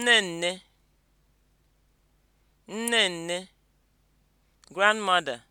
nne nne nne nne grandmother